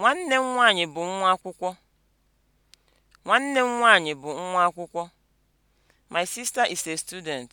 Nwanne m nwaanyị bụ nwa akwụkwọ. Nwanne m nwaanyị bụ nwa akwụkwọ. My sister is a student.